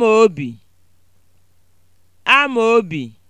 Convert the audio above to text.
obi. Amaobi. obi.